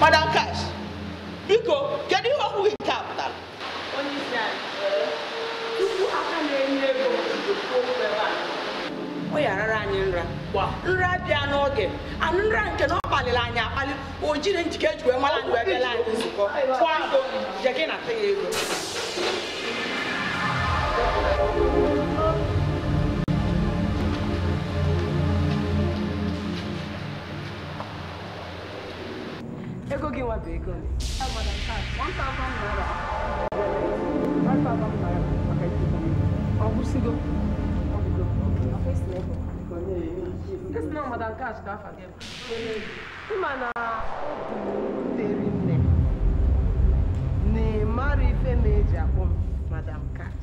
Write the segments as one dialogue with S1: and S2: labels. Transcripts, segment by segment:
S1: madam cash biko kedu ihe okwu gị nke a pụtara o yarara anyị nra nra bịa n'oge anụ nra nke na ọ kpaliri anyị akpali o jiri njike eji wee mara anyị wee
S2: that gas ka forget. Ịma na obi deri nne na-emara ife oh, na-eji akpọ m madam cat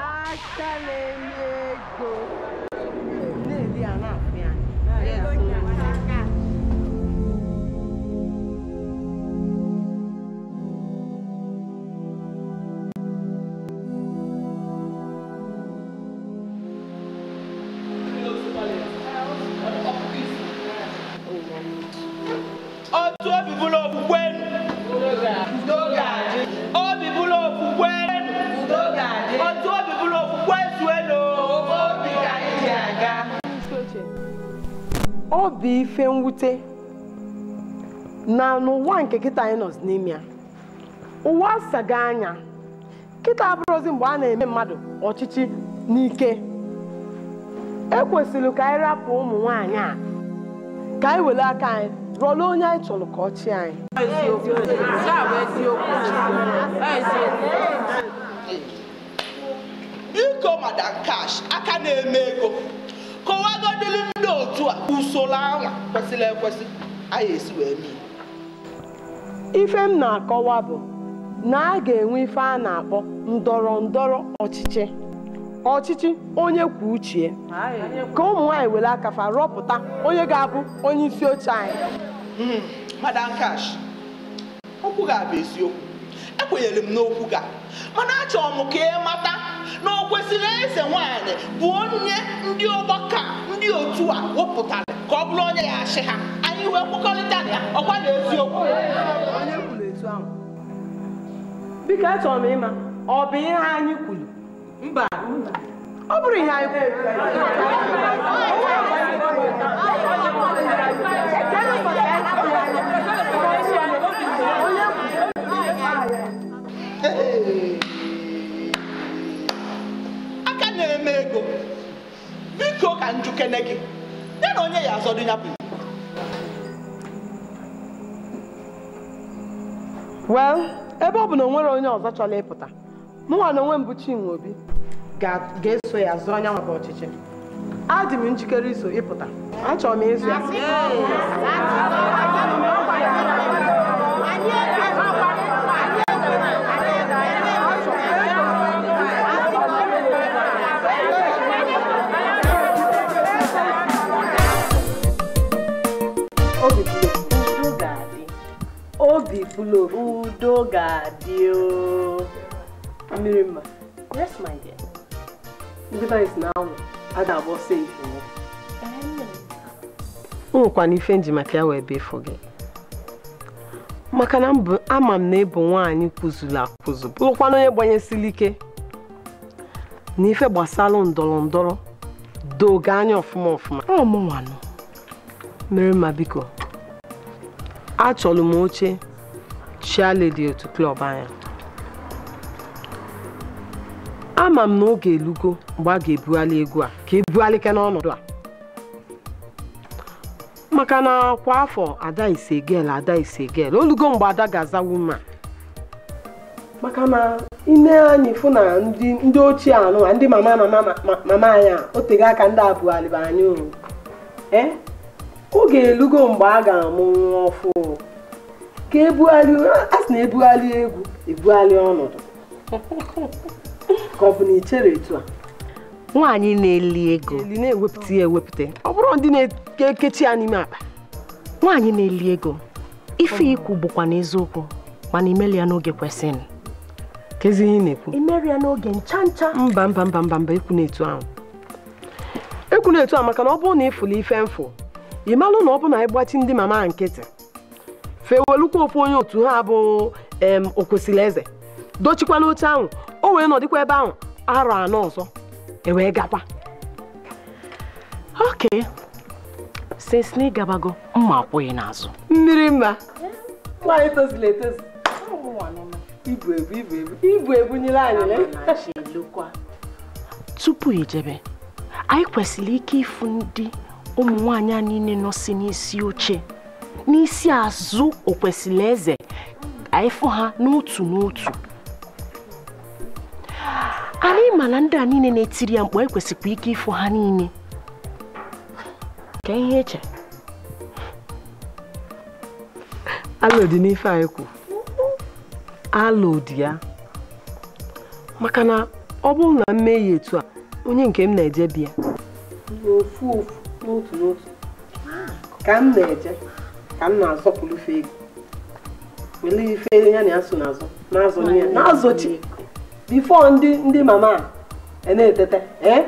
S2: aka na-enye ego ife mwute na n'ụwa nke kịta anyị nọ n'ime ya ụwa asaga anya kịta abụrụzi mgbe a na-eme mmadụ ọchịchị n'ike ekwesịrị ka anyị rapụ ụmụ nwaanyị a ka anyị were aka anyị rụọla onye anyị chọrọ ka ọ anyị
S1: madam cash aka na-eme ego kọwagodịrị ndị otu a usoro anwa kwesịrị ekwesị anyị esi wee mee ife m
S2: na-akọwa bụ na a ga-enwe ife a na-akpọ ndọrọ ndọrọ ọchịchị ọchịchị onye kwuo uche ka ụmụ nwaanyị were akafa rọpụta
S1: onye ga-abụ onye isi oche anyị hmm, madam kash okwu ga-abụ eziokwu ekwenyere m n'okwu ga mana achọrọ m ka ị mata na o kwesịrị eze nwanyị bụ onye ndị ọgbakọ ndị otu a wepụtara ka ọ bụrụ onye ya achị ha anyị wee kwekọrịta ya ọkwa na eziokwu
S2: biko achọrọ m ịma ọ bụ ihe anyị kwuru
S1: mba ọ bụrụ ihe anyị kwuru na-eme ego biko ka njukene gị ya na onye ya azọdụ ya bụ
S2: well ebe ọ bụ na onwere onye ọzọ chọrọ ịpụta mụnwa na onwe m Chinwe Obi ga-eso ya zụọ anya nwaka ọchịchị adị m njikere iso ịpụta achọrọ m ịzụ ya obi bulo udo ga-adị mmiri mma yes my dear ndị be na anwụ a ga-agba ọsọ nwekwana ife nji maka ya wee befo gị maka na ama m na ịbụ nwaanyị kwụzuru akwụzụ bụrụkwana onye gbanyesiri ike na ife gbasara ndọrọ ndọrọ doge anya ọfụma ọfụma mụnwanụ mere biko achọrọ m oche Chiale dị otu klọb anya ama m na oge elugo mgbe a ga-ebughalị egwu a ka ebughalịke n'ọnọdụ a maka na kwa afọ ada ise gel ada ise gel olugo mgbe ada ga aza wuma maka na ine anyị fụ na ndị ochie anụ a ndị mama mama anyị a otego aka ndị abụghalịba anyị eh? oge elugo mgbe a ga-amụ nwa ọfụ ka ebugharị a sị na ebugharị egwu ebugharị ọnọdụ ka ọ bụ na ichere etu a nwaanyị na-eli ego eli na-ewepụta ya ewepụta ọ bụrụ ndị na-ekechi ya n'ime akpa nwaanyị na-eli ego ife ikwu bụkwa n'eziokwu mana imeli ya n'oge kwesịrị kezi ihe na-ekwu imeri ya n'oge ncha ncha mba mba mba mba mba ekwu na-etu ahụ ekwu na-etu ahụ maka na ọ bụrụ na ịfụla ife mfụ ị malụ na ọ bụ na ịgbachi ndị mama nkịtị fewelukwa ofu onye otu ha bụ em okwesịrị eze dochikwana oche ahụ o wee nọdịkwa ebe ahụ arọ anọ ọzọ ewee gakwa ok since na ịgabago mma akwụghị n'azụ mmiri mma nwaanyị tozila etozu ibu ebu ibu ebu ibu ebunyere anyị tupu ijebe anyị kwesịrị ike ịfụ ndị ụmụ nwaanyị a niile nọ si n'isi oche n'isi azụ okwesịrị eze anyị ha n'otu n'otu anyị ịma na ndị a niile na-etiri ya mgbe anyị kwesịkwa ike ịfụ ha niile ka ihe eche alo n'ife anyị kwu alo ya maka na ọ bụrụ na m ya etu a onye nke m na-eje bịa m na-eje ka m na-azọpụrụ fe ego wele ife ya na ya so n'azụ n'azụ ya n'azụchi bifo ndị ndị mama a e na-etete ee eh?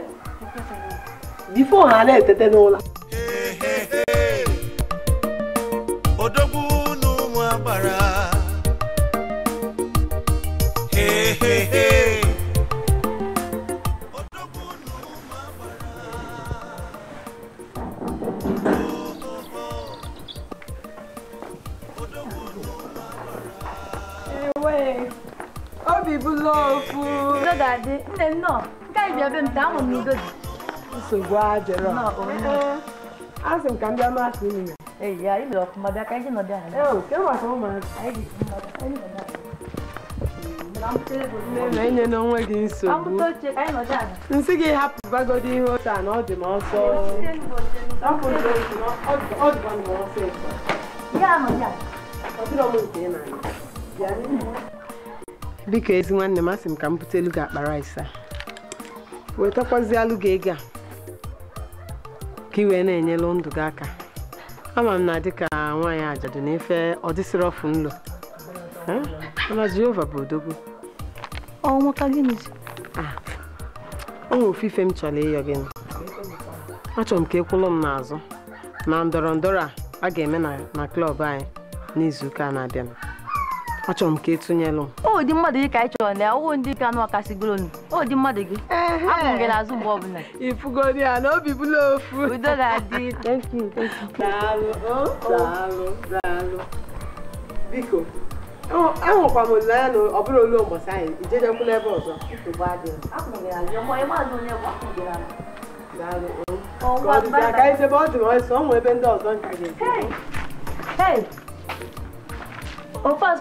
S2: bifo ha na-etete n'ụlọ Gofu. Saudade. não não. bia bem dá um nido. Isso guarda, não. Não. Ah, não cambiar mais assim, né? Ei, aí meu, como bia kai não dá. Eu, que eu acho não, Aí, não,
S1: não, não, não, não não, não não, não, não
S2: não não, não
S3: não, não, não
S2: biko ezi nwanne m asị m ka m bute elu gị akpa rice a wetakwazialụ gị ego a ka ị na-enyelu ndụ gị aka ama m na dịka nwaanyị ajadu na-efe ọdịsịrị ọfụ nlo mana jehova bụ odogwu ah, onwe ofufe m chọrọ ịyọ gị achọrọ m ka ekwụlụ m n'azụ na ndọrọ ndọrọ a a ga-eme na klọb anyị n'izuụka na-abịanụ achọrọ m ka ịtụnyelụ o dị mmadụ gị ka anyị chọrọ na ya ọwụ ndị ka anụ ọkasigoro nu o dị mmadụ gị abụ m gị n'azụ mgbe ọbụla ifugodi ya na obi bụla ofu udo ga-adị oh, oh. biko ahụkwa m olileanya na ọ bụrụ olu ụbọchị anyị ijejekwula ebe ọzọ aka ebe oh. ọ dụrụ ọsọ ọ nwe ebe ndị ọzọ nka ga-eje Hey! Opas,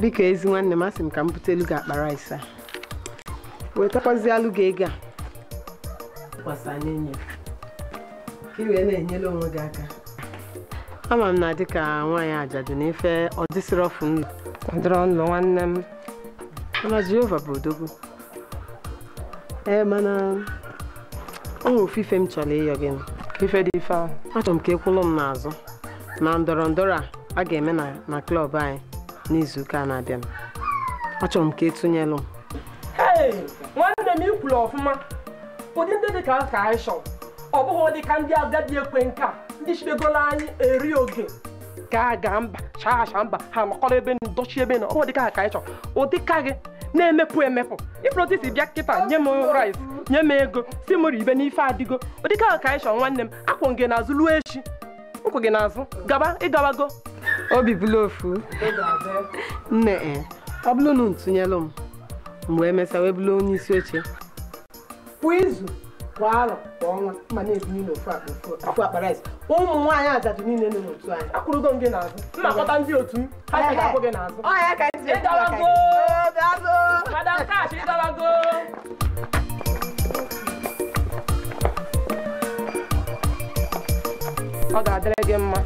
S2: biko ezi nwanne m asị m ka m elu gị akpa rice a wetakwazialụ gị ego a gbasanye nye ka wee na-enyere onwe gị aka ama m na dịka nwaanyị ajadu na-efe ọdịsịrị ọfụ nlụ ọdịrọ nlụ nwanne m mana jehova bụ odogwu ee mana onwe ofufe m chọrọ ịyọ gị ife dị ife ahụ achọrọ m ka ekwụlụ m n'azụ na ndọrọ ndọrọ a a ga-eme na klọb anyị n'izuụka na-abịa achọrọ m ka e m. nwanne m ikwuru ọfụma ụdị ndị dị ka ka anyị ọ bụghị ụdị ka ndị agadi ekwe nka ndị chibegoro anyị eri oge Gaa gaa ga mba chacha mba ha nọkọrọ ebe ndochi ebe na ọdị ka ka anyị chọrọ ụdị ka gị na-emepụ emepụ ịpụrụdisi bịa kịta nye m rice nye m ego si m ibe n'ife adịgo ụdị ka ka anyị nwanne m akwụ gị n'azụ ruo echi ụkwụ gị n'azụ gaba ịgawago obi bụla ofu nne eh, ọ bụrụ na ntụnyelụ m mgbe wee mesịa wee bụrụ onye isi oche kwa izu kwa arọ kwa ọnwa mma na-ebinye n'ofu akpa akpara ụmụ nwaanyị ajadu niile nọ n'otu anyị akwụrụgo m gị n'azụ nnakọta ndị otu m ha si na-akwụ gị n'azụ ịgalago
S1: madam kash ịgalago
S2: ọ ga-adịrị gị mma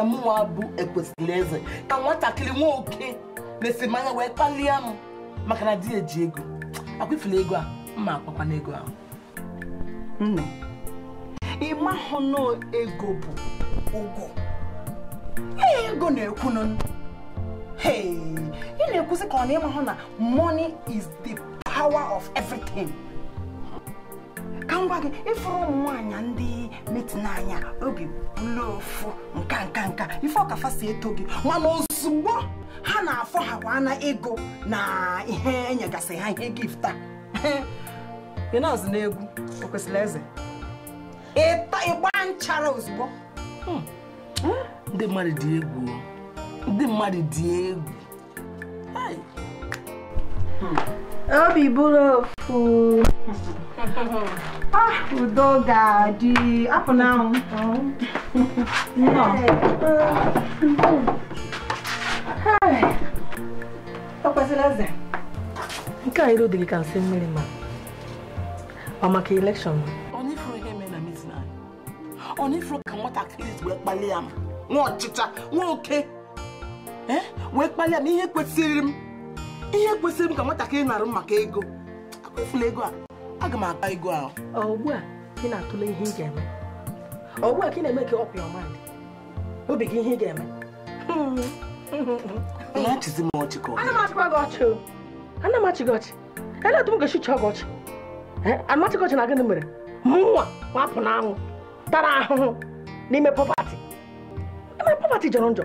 S2: anya mụnwa bụ ekwesịrị eze ka nwatakịrị nwa oke lesi m wee kpalie m maka na di eji ego akwụfere ego a mma akpakwana ego ahụ nne ịmahụ na ego bụ ụgwọ ihe ego na-ekwu nụ ị na-ekwusị ka ọ na ịmahụ na money is the power of everything. ka m gwa gị ịfụrụ ụmụ nwaanyị ndị metin anya obi bụla nka nka nka ife ọkafa si eto gị mana ozugbo ha na-afọ ha kwa na ego na ihe enyegasị ha ihe na-azụ n'egwu o kwesịrị eze ịgba nchara ozugbo hmm. Hmm?
S4: ndị mmadụ dị egwu
S2: ndị mmadụ dị egwu hmm. obi bụrụ ofu udo ga-adị apụ n'anwụ nke a iru dịrị ka nsị mmiri ma ọ maka elekshọn ọ na-efuru ka nwatakịrị wee kpalie m nwa ọchịcha nwa oke eh? wee kpalie m ihe kwesịrị m ihe kwesịrị m ka nwatakịrị narụ m maka ego akụfula ego a aga m aba ego ahụ ugbu a ị na-atụle ihe ị ga-eme ọgbu a ka ị na-eme ka ọpụ ọma obi gị ihe ị ga-eme na-achịzi m ọchị ka ana m achị gị ọchị ele etu m ga-esi chọọ gị ọchị anachịghị ọchị na gịnị mere mụnwa wapụ n'anwụ tara ahụhụ n'ime pọpati ime pọpati jọrọ njọ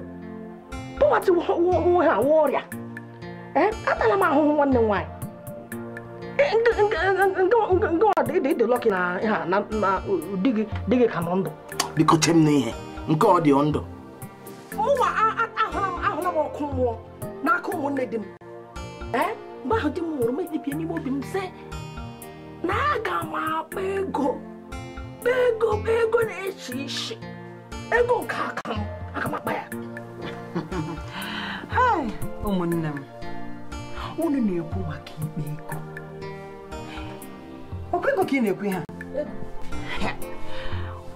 S2: pọpati nwe ha nwe ọrịa atala m ahụhụ nwanne m nwaanyị dị lọkị na ha na di gị di gị ka nọ ndụ biko chem m n'ihe nke ọ dị ndụ mụnwa ahụla m ọkụ mmụọ n'aka ụmụnne di m mgbe ahụ di m nwụrụ m ekpebie n'ime obi m sị na aga m akpa ego ego ego na-echi isi ego nke aka m aga m akpa ya ụmụnne m unu na-ekwu maka ikpe ego ọkwa ego ka ị na-ekwu ha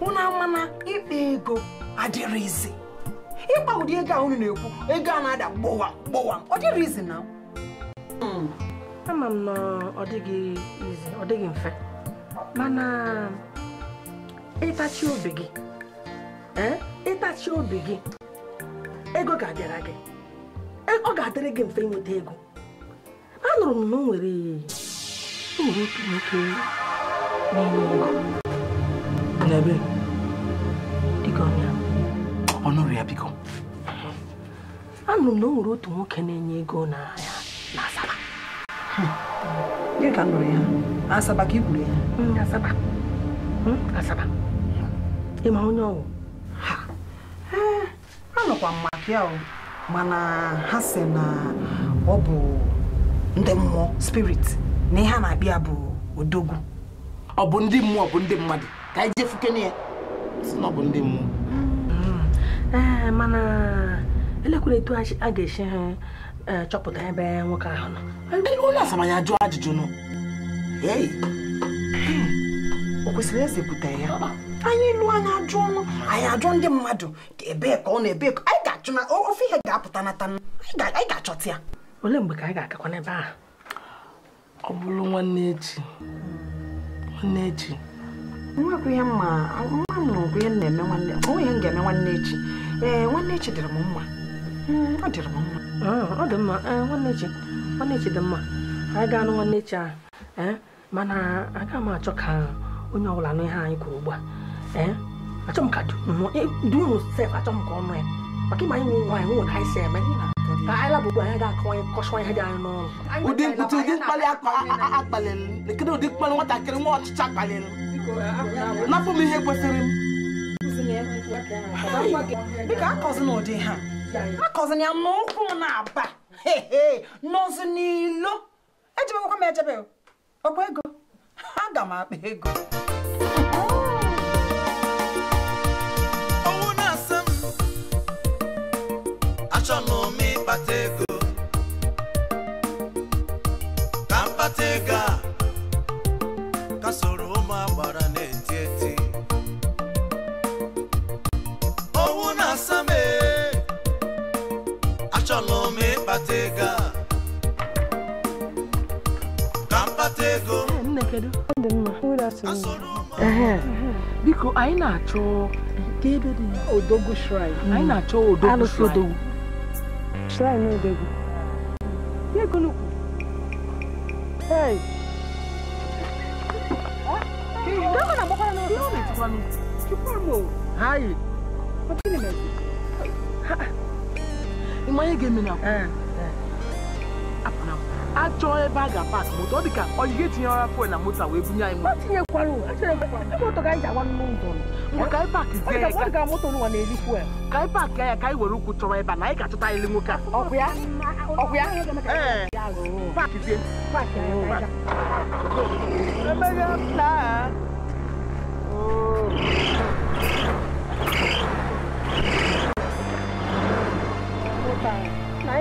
S2: unu amana ikpe ego adịrịzi ịkpa ụdị ego a unu na-ekwu ego a na-ada gbowam gbowam ọ izi na hmm. ama m na ọ dịghị izi ọ dịghị mfe mana ịtachi obi gị eh, ịtachi obi gị ego ga-abịara gị eh, ọ ga-adịrị gị mfe inweta ego anụrụ m na nwere nwere otu nwoke na ego n'ebe dịka ọnya ọnụrụ ya biko anụrụ m na o nwere otu nwoke na-enye ego ya na asaba dịka nụrụ ya asaba ka i ya hmm, asaba hmm, asaba ịma onye ọwụ anọkwa m maka ya mana ha se na ọ bụ ndị mmụọ spirit na ihe a na-abịa bụ odogwu ọ bụ ndị mmụọ bụ ndị mmadụ ka anyị jefuke fukene ya si na ọ bụ ndị mmụọ hmm. ee eh, mana elekwala etu a ga-esi eh, eh, chọpụta ebe nwoke ahụ nọ onye asamanya ajụ ajụjụ nọ hmm. o kwesịrị ezepụta ya anyị lụọ anyị ajụ ọnụ anyị ajụ ndị mmadụ ebee ka ọ na-ebe ka anyị ga-achụ na ofe ihe ga-apụta nata anyị ga-achọta ya Ole mgbe ka anyị ga-agakwa n'ebe a? ọ bụrụ nwanne echi nwanne echi nwekwa ihe mma nwa m nụrụ ihe na-eme nwanne onwe ihe m ga-eme nwanne echi ee nwanne echi dịrị m mma hmm, ọ dịrị m mma ọ dị mma Ee, nwanne echi nwanne echi dị mma anyị ga-anụ nwanne echi ahụ mana aga m achọ ka onye ọbụla nụ ihe anyị kwuru ugbu a achọ m ka dị unu e, sef achọ m ka ọ nụ ya maka ịma anyị nwe nwaanyị nwe ka anyị si eme ka anyị labụkwa anya ga-akọwanye kọchwa ihe dị anyị n'ụlọ. ụdị mkpuchi ụdị mkpali akpalịlụ kedu ụdị mkpali nwatakịrị nwa ọchịchị akpalịlụ napụ m ihe kwesịrị m dịka akọzi ụdị ha akọzina ya n'ụkwụ m na-aba n'ọzụ n'ilo m ejebe m akpa ego kedu biko anyị na-achọ nke ebe dị odogwu shrine hmm. anyị na-achọ odogwu shrine shrine odogwu ego n'ukwu hey Hayi. Ọkụ Ị ma ga-eme na akwụkwọ? Eh. chọọ ebe a ga-apak moto ọ dịka ka tinyere afọ etinyere na moto wee bunye anyị ka anyị pak ya ka anyị were ụkwụ chọrọ ebe
S1: a na anyị ga-achọta anyị nwoke a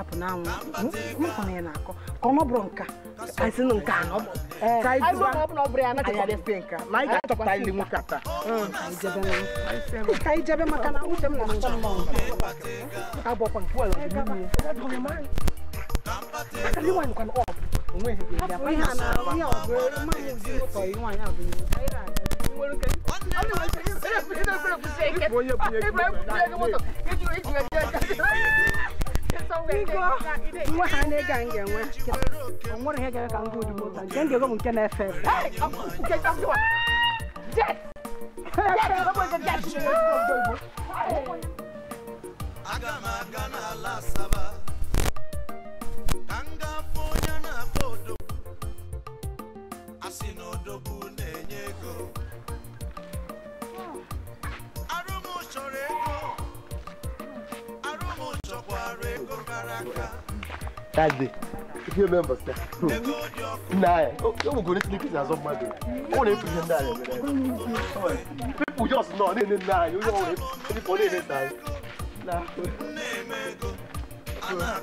S2: apụ n'anwụ nkwa ya na-akọ ka ọ nọbụrụ nka asị na nke anọ ka anyị nwoke ata ka anyị jebe maka na uche m na-achọ abọkwa nke nwaanyị nwa ha na ịga
S3: that day if you remember sir na o go need sneakers as of madu o wan fit send that people just know ne ne na you know it any for ne ne ta na na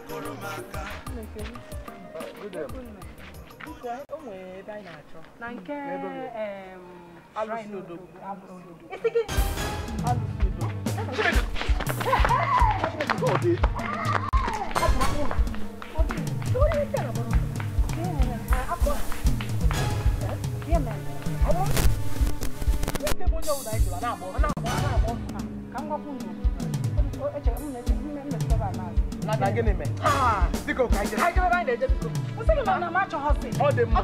S2: nke alụsị odo isi gị
S5: alụsị odo
S2: gịnị mee? Biko ka anyị jee. Anyị jebe ebe anyị na-eje biko. Nsị gị na ma achọghọzi. Ọ dị mma.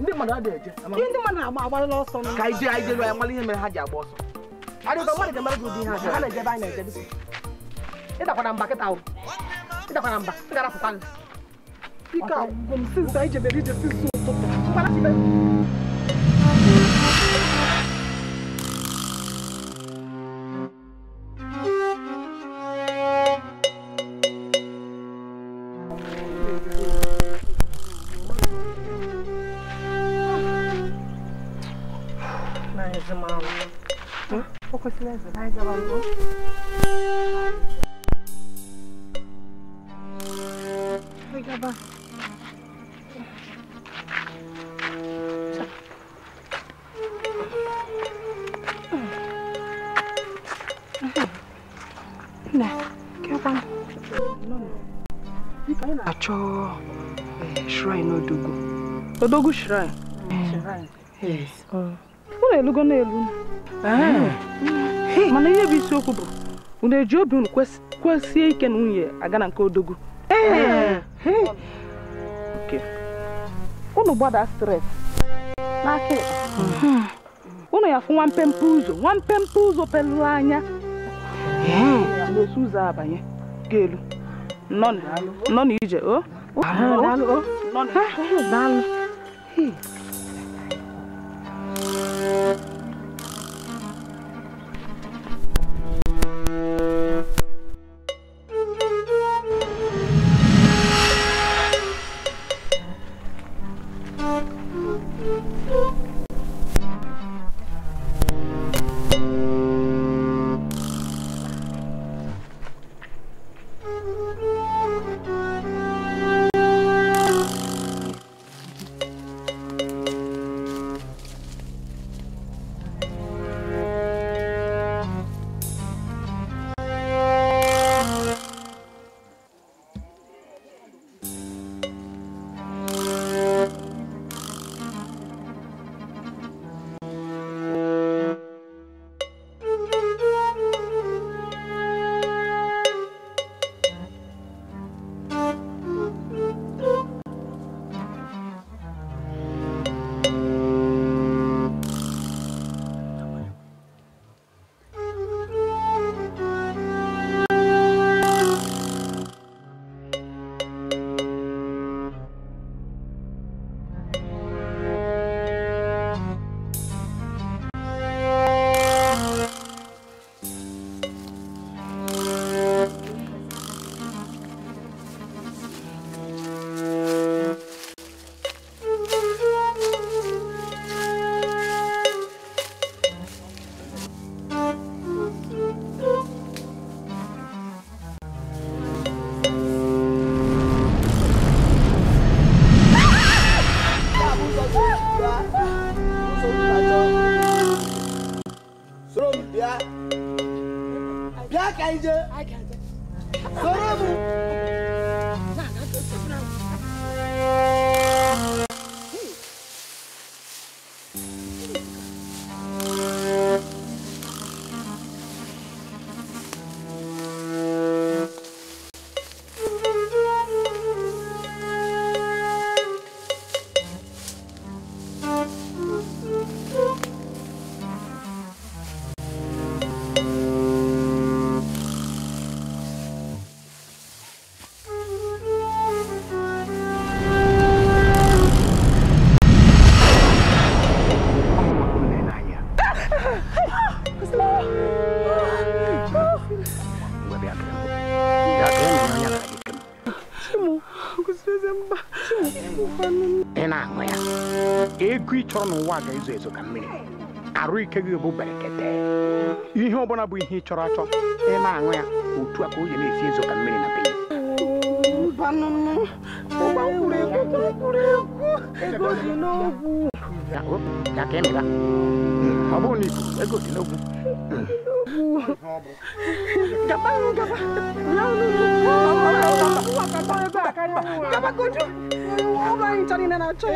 S2: ndị mmadụ adịghị eje ihe ndị mmadụ na-agbalị ọsọ ka anyị jee anyị jelu anyị mara ihe mere ha ji agba ọsọ adịghị mmadụ ga-emere gị ụdị ihe ha ha na-eje ebe anyị na-eje bisi ịdakwana mba kịta ahụ ịdakwana mba ị ga-arapụta nla ike agwụgwọ m sinsa anyị ije sinsa ụtụtụ нажимала.
S6: Фокус лезет. Дай голову. Ой,
S7: габа.
S2: Nè, kéo băng là cho shrine Odogu Odogu shrine Shrine Yes, y e na-elugo na-elu ah. eh. mana ihe bụ isiokwu bụ unu eji obi unu kwesie ike na nwunye aga na nke odogu. Eh. Eh. unu gbada stres n'aka mhm. unu ya fụ nwa mpempe ụzọ nwa mpempe ụzọ pelụrụ anya na-esi ụzọ abanye ga-elu nọ na ije o
S8: chọrọ n'ụwa ga-ezo ezo ka mmiri arụ ike gị bụ berekete ihe ọbụla bụ ihe ị chọrọ achọ ị na-aṅụ ya otu a ka oyi na-esi ezo ka mmiri na bee ọ bụrụ na ikuku ego dị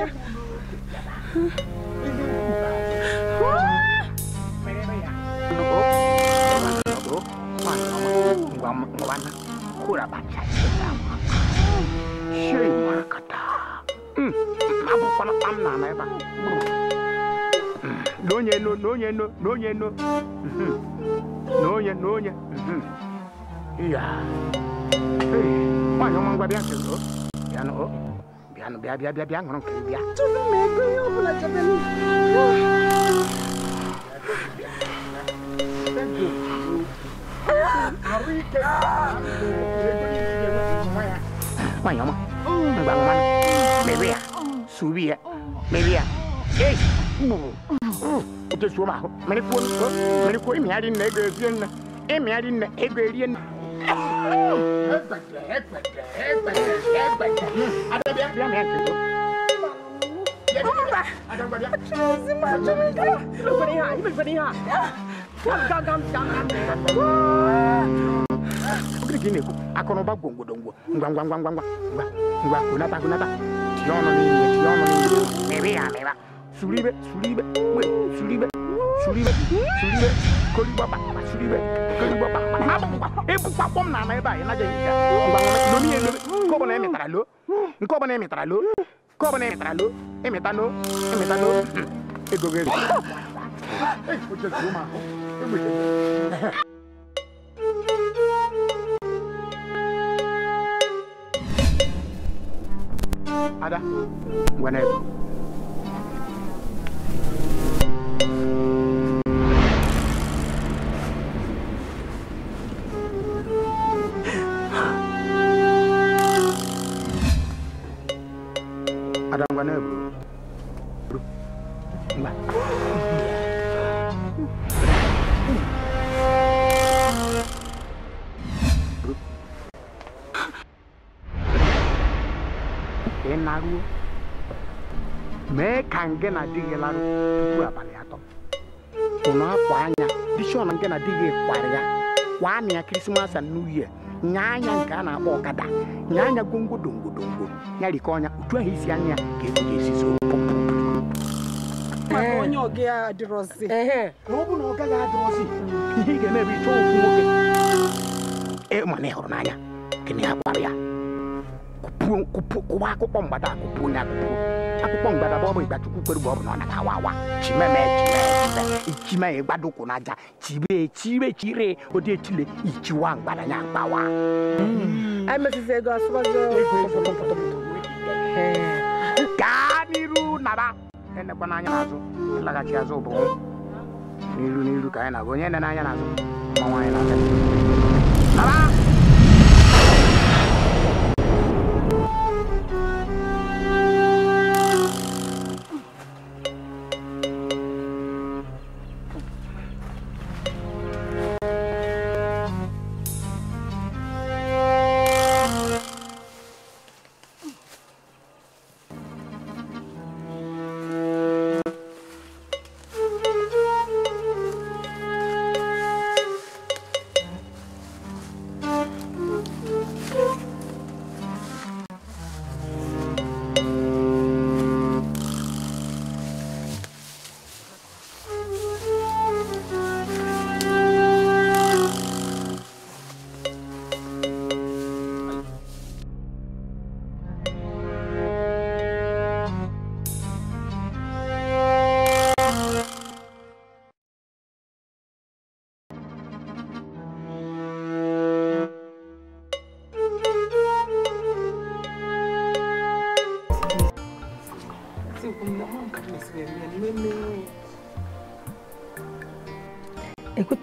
S8: ngwana kulabatla iselawa shei makata abukwana amnana eba nonye no nonye no nonye no nonye nonye ya hey mwana omangwa byanke lo bien bien bien mais bien bien, bien, bien, bien, bien, bien, baik.
S2: Ada dia, dia main gitu. Ada apa dia? Macam itu. Ibu beriha, ibu beriha. Kam, kam, kam, kam, kam.
S8: Oke gini, aku noba gongo dongo. Ngwang, ngwang, ngwang, ngwang, ngwang, ngwang. Kunata, kunata. Yono ni, yono ni. Mebe ya, Suribe, suribe, we, suribe, suribe, suribe. Koli baba, suribe, koli baba. Abu, ibu papom nana eba, ina jadi. Ngwang, ngwang, ngwang, ngwang, ngwang, ngwang, mitralo nkoba na mitralo nkoba na mitralo emitano emitano egogeri e ada gua naik nke na-adịghị larụ tupu abalị atọ akwa anya dishọn nke na ya na ya krismas and new year anya nke a na-akpọ ọkada nyaa anya gwongwodo ya rikọ ọnya otu ahụ isi anya ka ego ga-esizi ihe ịmana ịhụrụ n'anya gịnị ya kwara ya kụpụọ akụkpọ mgbada akụpụ onye akpụkpọ mgbada bụ ọbụ Igbachukwu kwere mgbe ọ bụ na ọ na-atawa awa chimeme chimeme ichime ịgbadokwu n'aja chibe chire chire ụdị echile ichiwa mgbada ya mgbawa hmm. gaa n'iru naba enekwa n'anya n'azụ ịlaghachi e azụ bụ n'iru n'iru ka anyị na-aga onye na-anya n'azụ mmanwa anyị na-aga naba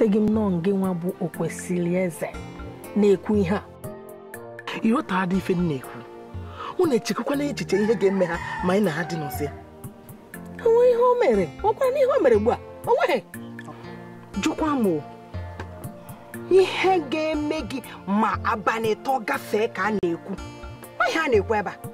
S2: eghọtaghị nnọọ nọọ gị nwa bụ okwesịrị eze na-ekwu ihe a dị ife m na-ekwu na na echiche ihe ga-eme ha ma anyị na ha dị n'ụsịa onwe ihe o mere ọkwara ihe o mere ugbu a onweghị jụkwa m ihe ga-eme gị ma abalị tọ gafee ka a na-ekwu ihe a na-ekwu ebe a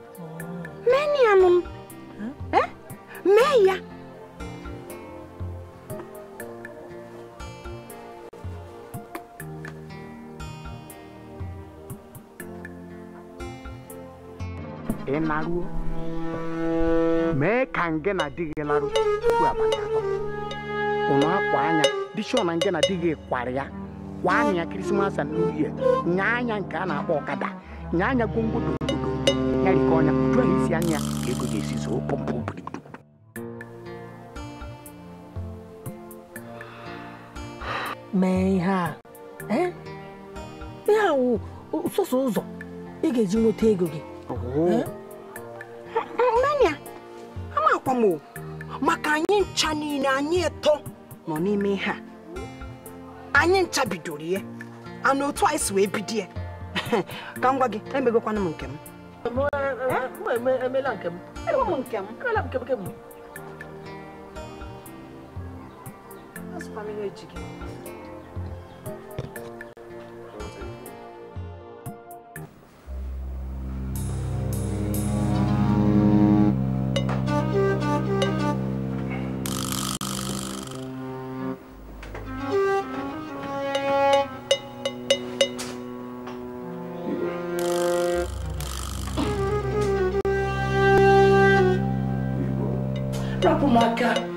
S8: laruo mee ka ngena di gị larụ tupu abalị atọ ụnụ akwa anya dị ọ na ngena di gị kwara ya kwa anya ya kirisimasi na uhie nya anya nke a na-akpọ ọkada nya anya gwongwodo obodo ọnya uju isi anya ka ego ga-esi zoo
S2: mee ihe a ihe a wụ ụzọ ị ga-eji nweta ego gị maka anyị ncha niile anyị eto nọ n'ime ihe a anyị ncha bidoro ihe ana otu anyị si wee bido ya ka m gwa gị emegokwana m nke m That's family education. Oh my god.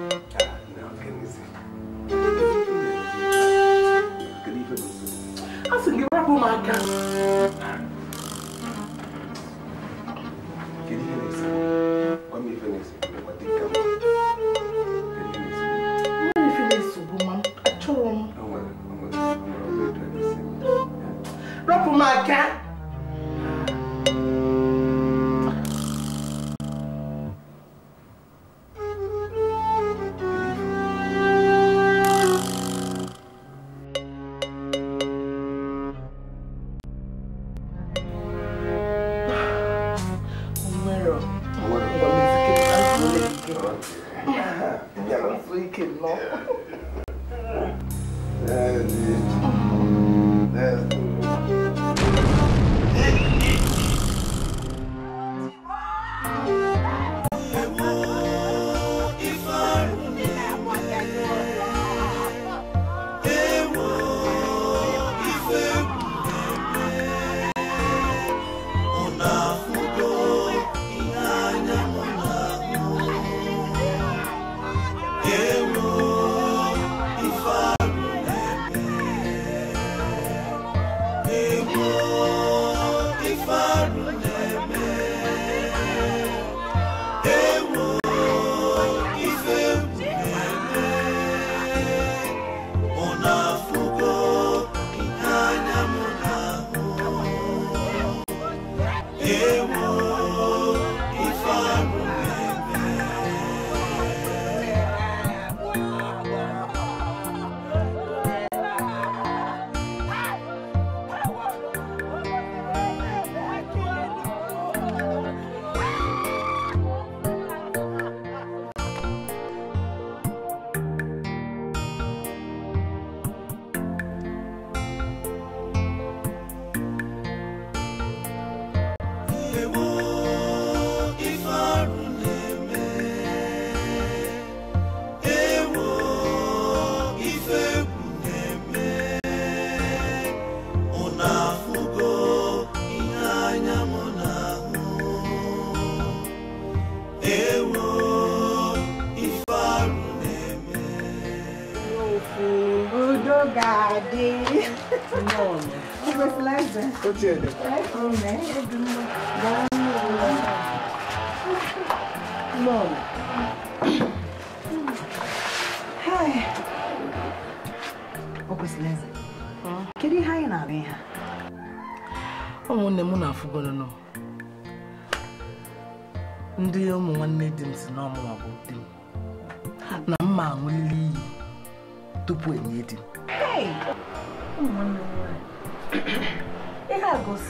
S2: отдельно.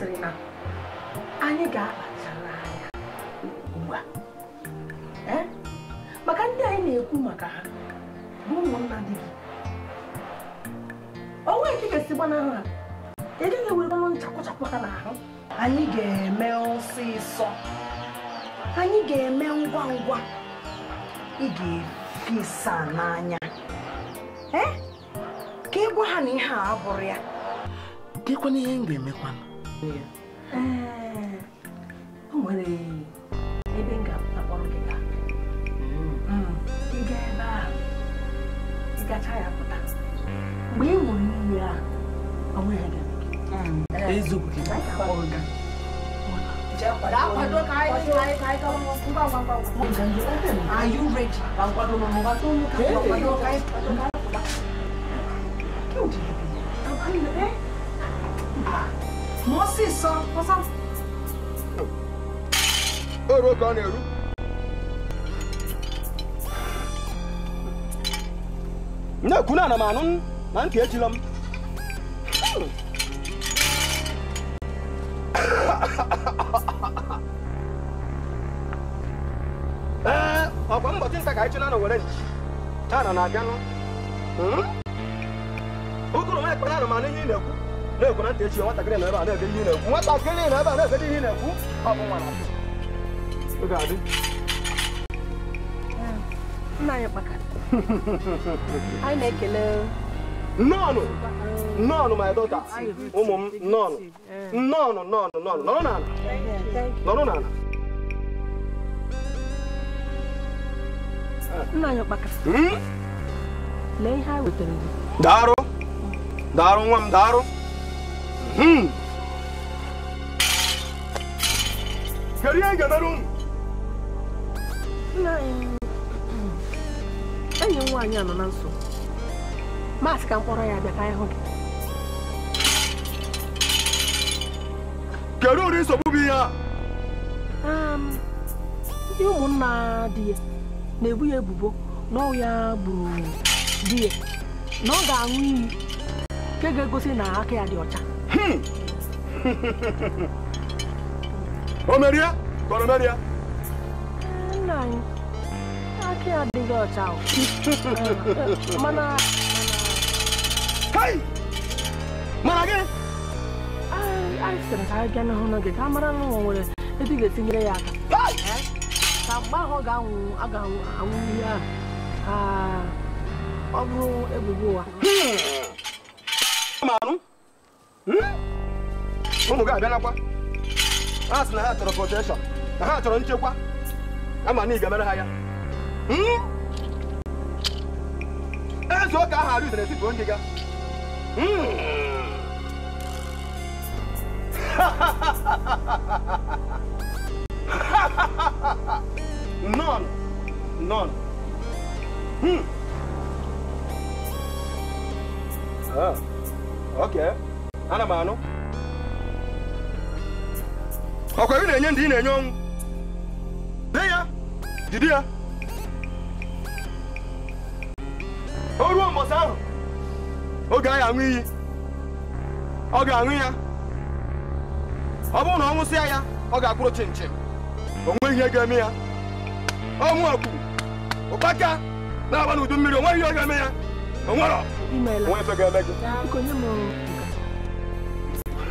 S2: sịrị na anyị ga-akpachara anya ugbu eh? maka ndị anyị na-ekwu maka ha bụ ụmụnna dị gị onwe nke ga-esi gbanahụ ha ga-ewere gaghị ewerebanụ nchakwụchakwụ ha n'ahụ anyị ga-eme ọsịsọ anyị ga-eme ngwa ngwa ị ga-efesa n'anya eh? ka ị gwa ha na ihe a abụrụ ya
S1: dịkwana ihe m ga-emekwana ya
S2: ee o nwere ebe m ga-akpọrọ gị gaa ị gaa ebe a ị gacha ya pụta mgbe ị hụrụ nri a ọ nweghị gị mo sì sọ mo sọ.
S3: èrò kan ní èrú. ne kuna na manun nan ke jilam eh ọkwa mbọtị nta ka anyị chụna na were taa na na-abịanụ ụkụrụ m ekpere anụmanụ ihe ị na-ekwe na ntị echi nwatakịrị na ebe a na-ebe ihe na-ekwu nwatakịrị na ebe a na-ebe hmm. ihe na-ekwu ọ bụ nwa na-adị nna anyị kpakara anyị na-ekele nnọọnụ
S2: hmm. nnọọnụ my dọta
S3: ụmụ m nnọọnụ nnọọnụ nnọọnụ nnọọnụ nọrọ n'ala nọrọ n'ala nna anyị kpakara lee ihe anyị wetara gị daalụ daalụ nwa m daalụ Kariyan gadarun!
S2: Nna enyi m nwaanyị anọ na nso. Maasị ka mkpọrọ ya abịa ka anyị hụ gị.
S3: Kedu ụdị nsogbu bụ ihe a?
S2: Ndị ụmụnna di ya na-ebu ya ebubo na ọ ya gburu di ya na ọ ga-aṅụ iyi nke ga-egosi na aka ya dị ọcha.
S3: Omeria? Omeria?
S2: Nani? Aki adịghị ọcha mana Hey! Mana gị? Anyị sịrị ka anyị gaa n'ahụ n'oge ka a mara na ụwa nwere ebe ị ga-etinyere ya aka. Ka mgbe ahụ ọ ga-anwụ a ga-anwụ ihe ahụ ka ọ bụrụ ebubo ụwa.
S3: Ma anụ? Hmm? ụmụ gị n'akwa. A sị na ha chọrọ protekshọn na ha chọrọ nchekwa ama na ị ga-emere ha ya hmm? eze ụka ahụ arụzere bụ onye ga hmm? non, non, Hmm. Ah, okay. ana m anu. ọkwa na-enye ndị ị na-enye ọnwụ de ya jide ya o ruo aṅụ iyi ọ ga-aṅụ ya ọ na ọ nwụsịa ya ọ ga akpụrụ chin chin nweghị ihe ga-eme ya ọnwụ mmiri ihe ọ ga-eme ya o nwere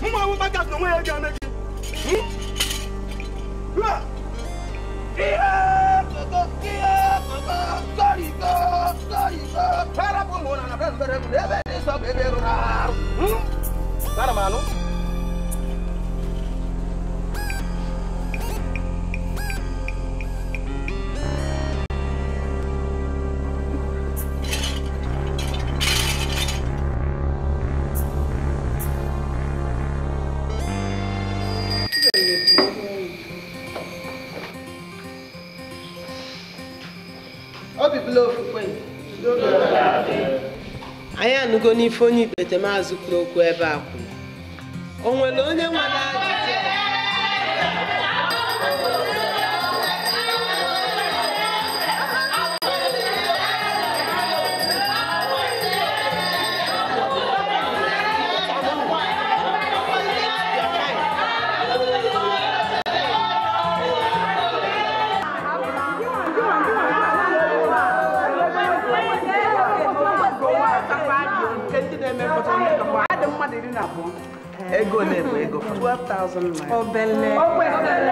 S3: Mwa wou makas nou mwen e gen me ki. Lwa. Hmm? Kiye koko, kiye koko, koriko, koriko. Para pou mwona na prez bere kou lebe di so bebe rounar. Tara hmm? manu.
S2: n'ife onye ikpete maazị kwuru okwu ebe a kwuru
S1: o nwere onye nwere ego na-ebu
S2: ego 12,000 naira. obele obele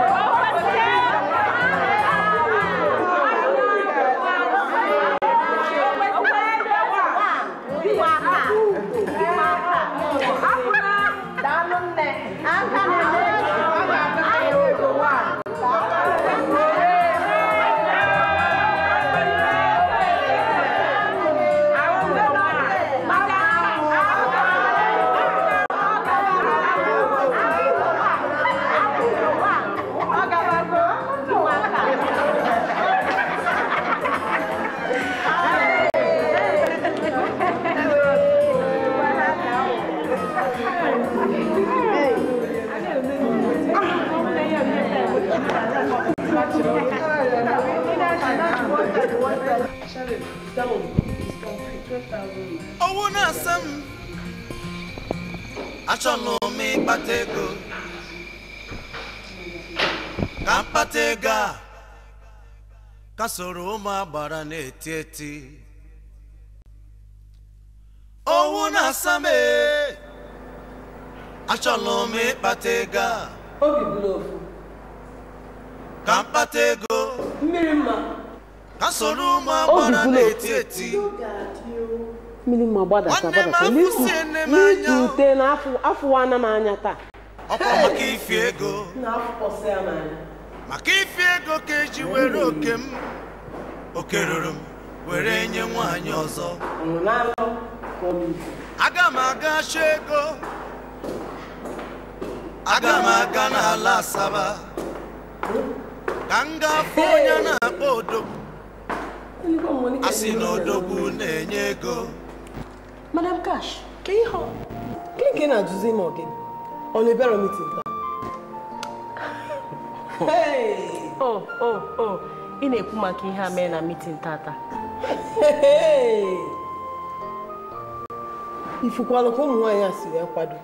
S9: ha soro ụmụ agbara na-eti eti owu na-asa m achọla m ịkpata ego a obi ka mkpata ego mmiri mma ka soro ụmụ agbara na-eti eti
S2: mmiri mma taa
S9: ọkwa maka maka ife ego ka eji were oke m oke ruru m were nye nwaanyị ọzọ aga m aga chọ ego aga m aga n'ala asaba ka m gafụ onye na-akpọ odogwu a sị na odogwu na-enye ego
S2: madam cash ka ihe ọ gịnị ka ị na-ajụzi m ọgịnị ọ na mitin taa o o o ị na-ekwu maka ihe a mee na mitin tata ifukwala ka ụmụ nwaanyị a si wee kwado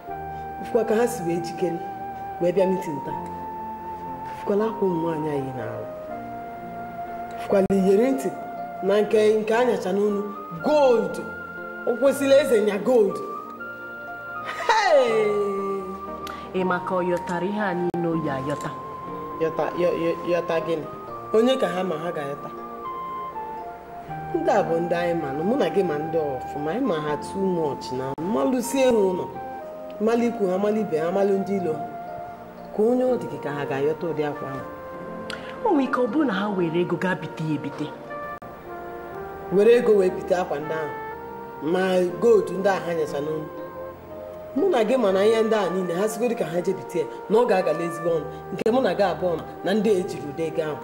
S2: ifukwa ka ha si wee jikere wee bịa mitin taa ifukwala akwa ụmụ nwaanyị anyị na-arụ ifukwala iyeri ntị na nke nke anyacha n'onu gold ụkwụsịla eze nya gold ị maka ọyọtara ihe a niile oyi ayọta yọta gịnị onye ka ha ma ha ga-ayọta ndị a bụ ndị anyị manụ mụ na gị ma ndị ọfụma anyị ma ha tu mọch na mmalụsi elu ụlọ mmalụ ikwu ha mmalụ ibe ha mmalụ ndị ilo ka onye ọ dị ka ha ga-ayọta ụdị akwa ahụ o nwere ike ọ bụrụ na ha were ego gaa bite ya ebite were ego wee bite akwa ndị ahụ ma goldu ndị ahụ ha mụ na gị mana ihe ndị a niile ha sigo ka ha jebite ya na ọ ga-agala ezigbo ọnụ nke mụ na gị abụọ na ndị ejiri ụdị ahụ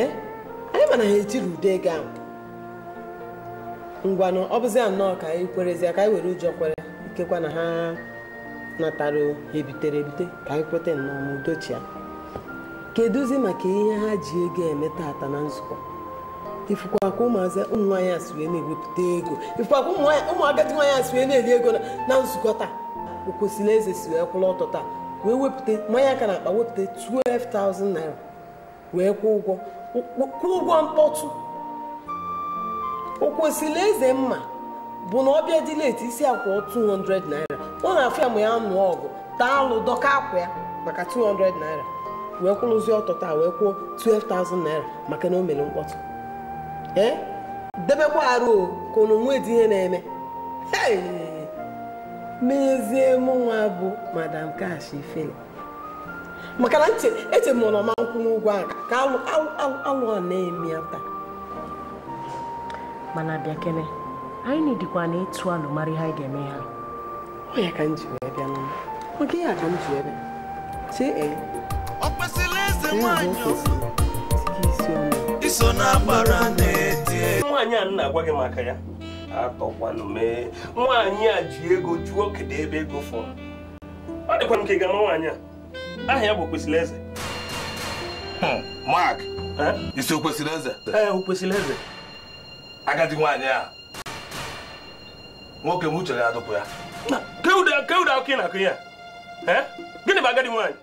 S2: eh? anyị mana ha ejiri ụdị ego ahụ ngwanụ ọ bụzi nnọọ ka anyị kwerezie ka anyị were ụjọ kwere ikekwa na ha natara ebitere ebite ka anyị kweta nnọọ ma udochi ya kedụzi maka ihe ha ji ego eme tata na nzukọ ifụkwa ka ụmụazị ụmụ a si wee na-ewepụta ego ifụkwa ka nwaanyị a si wee na-eri ego na nzukọ taa o kwesịrị eze si wee kwụrụ ọtọ taa wee wepụta mmanya aka na akpa wepụta 12,000 naira wee kwụ ụgwọ kwụ ụgwọ mkpọtụ o eze mma bụ na ọbịa dị leti isi akwa 200 naira ọ na-afụ ya ma ya nụọ ọgụ taa alụ dọka akwa ya maka 200 naira wee kwụrụzi ọtọ taa wee kwụọ 12,000 naira maka na o mere mkpọtụ ee debekwa arụ ka unu nwee dị ihe na-eme n'ezie nwa bụ madam kash ifeni maka na eche m nọ ma nkwụ n'ugwu ahụ ka alụọ na-eme ya taa mana bịa kene anyị dịkwa na ịtụ alụ mara ha anyị ga-eme ha ọ ya ka m ji wee bịa n'ụlọ oge ya ka m ji wee bịa chee ee ọ
S4: kwesịrị eze nwaanyị iso na agbara na nwaanyị a na-agwa gị maka ya atọkwanụ mee nwaanyị a ji ego jụọ kedu ebe ego fọrọ ọ dịkwa nke ga-ama nwaanyị a aha ya bụ kwesịrị Eze hmm, Mark isi Okwesili Eze ee Okwesili Eze agadi nwaanyị a nwoke m uche ya adụpụ ya na akụ ya gịnị bụ agadi nwaanyị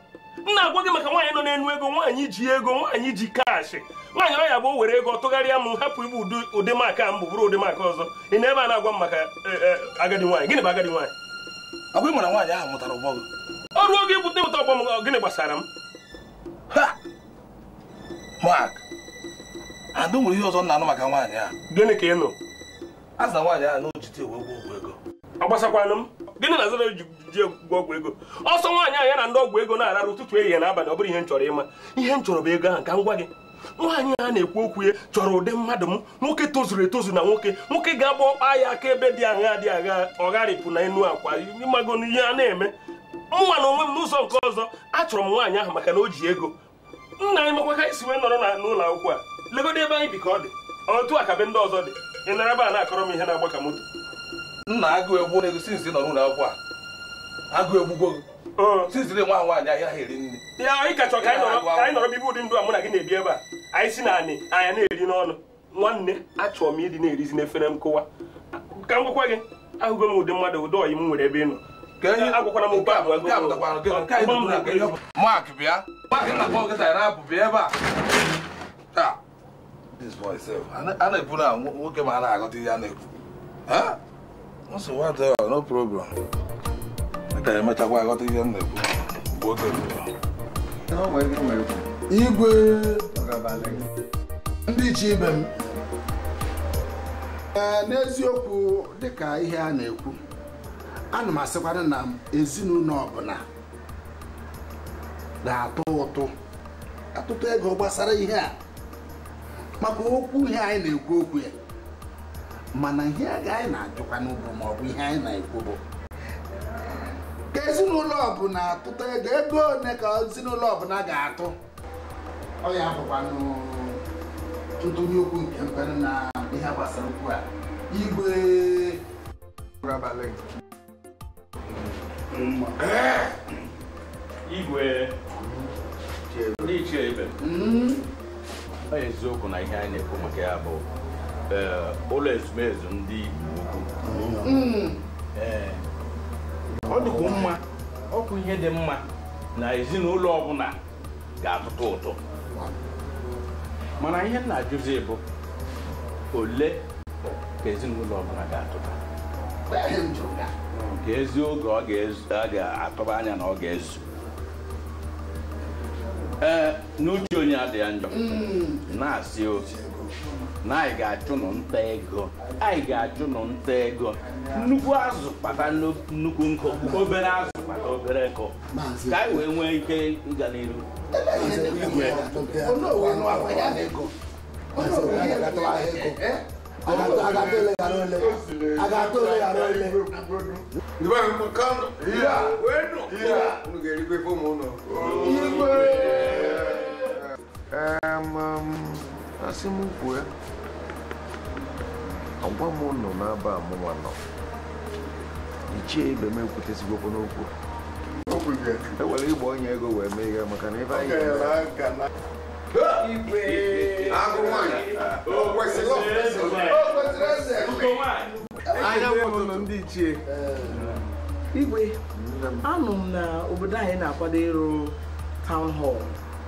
S4: m na-agwa gị maka nwaanyị nọ n'enu ego nwaanyị ji ego nwaanyị ji kaashị nwaanyị ọ ya bụ were ego tụgharịa m hapụ ibu ụdị maka mbụ bụrụ ụdị maka ọzọ ị na ebe a na-agwa m maka e, e, agadi nwaanyị gịnị bụ agadi nwaanyị agwa ọgwa ịmara nwaanyị ahụ mụtara ụgbọ gị ọrụ oge ibute ịmụta ọgbọ m gịnị gbasara m mak adụ nwere ihe ọzọ na-anụ maka nwaanyị a gịnị ka ị nụ na nwaanyị ahụ n'ochite ewe ụgwọ ụgwọ ego ọ gbasakwanụ m gịnị na azara ji ọgwụ ego ọsọ nwaanyị ahụ ya na ndị ọgwụ ego na-arara ụtụtụ ehihie na abalị ọ bụrụ ihe m chọrọ ịma ihe m chọrọ bụ ego ahụ ka m gwa gị nwaanyị a na-ekwu okwu ya chọrọ ụdị mmadụ m nwoke tozuru etozu na nwoke nwoke ga-agba ọkpa ya aka ebe dị agha dị agha ọgharịpụ na enu akwa ịmago n'ihe a na-eme nwa na onwe m n'ụzọ nke ọzọ achọrọ m nwaanyị ahụ maka na o ji ego nna anyị makwa ka anyị si wee nọrọ na n'ụlọ akwụkwọ a legodo ebe anyị bi ka ọ dị otu a ka ndị ọzọ dị ị nara ebe a na-akọrọ m ihe na-agba ka moto nna agụ egwu na-egosi nzi nọ n'ụlọ akwụkwọ a agụ egbugbo siziri nwa nwaanyị ahịa ha eri nri ya anyị kachọ ka anyị nọrọ bibe dị ndụ a mụ na gị na-ebi ebe a anyị si na anyị anya na-eri n'ọnụ nwanne achọrọ m ịdị na-erizi n'efere m kụwa ka m gwakwa gị ahụgo m ụdị mmadụ ụdị ọyị m nwere ebe ị nọ Mark bịa
S10: a na-ekwu na nwoke ma a na-agọta ihe a na-ekwu nsogbu adịghị no problem nta emechakwa aghọta ihe m na-ekwu igwe ndị iche ibe m n'eziokwu
S8: dịka ihe a na-ekwu ana m asịkwara na ezinụlọ ọbụla na-atụ ụtụ atụtụ ego gbasara ihe a maka okwu ihe anyị na-ekwu okwu ya mana ihe a ga anyị na-ajụkwa n'ugwu maọbụ ihe anyị na-ekwu bụ
S10: ka ezinụlọ ọbụla atụta ego ego one ka ezinụlọ ọbụla ga-atụ ọ ya bụkwanụ tụtụnye okwu nke mpere na ihe gbasara okwu a igwe
S4: igwe n'iche ibe mm-hmm. ọ eziokwu na ihe anyị na-ekwu maka ya bụ eh, ụlọ ezumezu ndị Igbo mm-hmm. eh,
S5: ọ dịkwa mma ọkụ ihe
S4: dị mma na ezinụlọ ọbụla ga-atụtụ ụtụ mana ihe na-ajụzi bụ ole ka ezinụlọ ọbụla ga-atụta ka ezi oge ọ ga-atụba anya na ọ ga-ezu ee n'uche onye adịghị njọ mm. na-asị ozi. na anyị ga-achụ nụ nta ego anyị ga-achụ nụ nta ego nnukwu azụ kpata nnukwu nkụ obere azụ kpata obere nkụ ka anyị wee nwee ike ịga n'iru igwe
S10: asị m kwuo ya agwa m nọ n'aba amụwa nọ ichie ibe m ekwutezigokwu n'okwu e were ịgba onye ego wee mee ihe maka na ebe
S2: anyị ndị ichie eh. igwe anụ m na obodo anyị na-akwado ịrụ town hall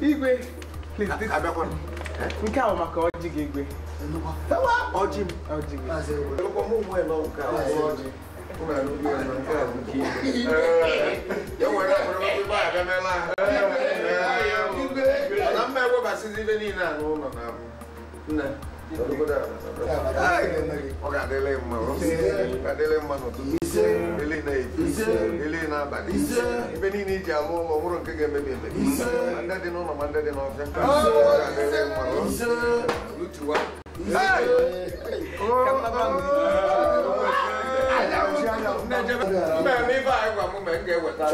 S10: Igwe, nke ahụ maka ọjị gị egbe ọjị m ọjị gị na mma ewebasịzi ibe niile a n'ụlọ na abụ nne ọ̀gá délé mọ̀ ọ̀gá délé mọ̀ nọ̀tún délé náà èjì délé náà bàdé ibi ní ní ìjà mú ọmọwúrò nkékè mẹ́mẹ́mẹ́ mandadi náà mandadi náà ọ̀fẹ́ ọ̀gá délé mọ̀ lùtùwà. Mẹ́mí bá ẹ̀wà mú mẹ́ ń gẹ̀ wẹ̀ta.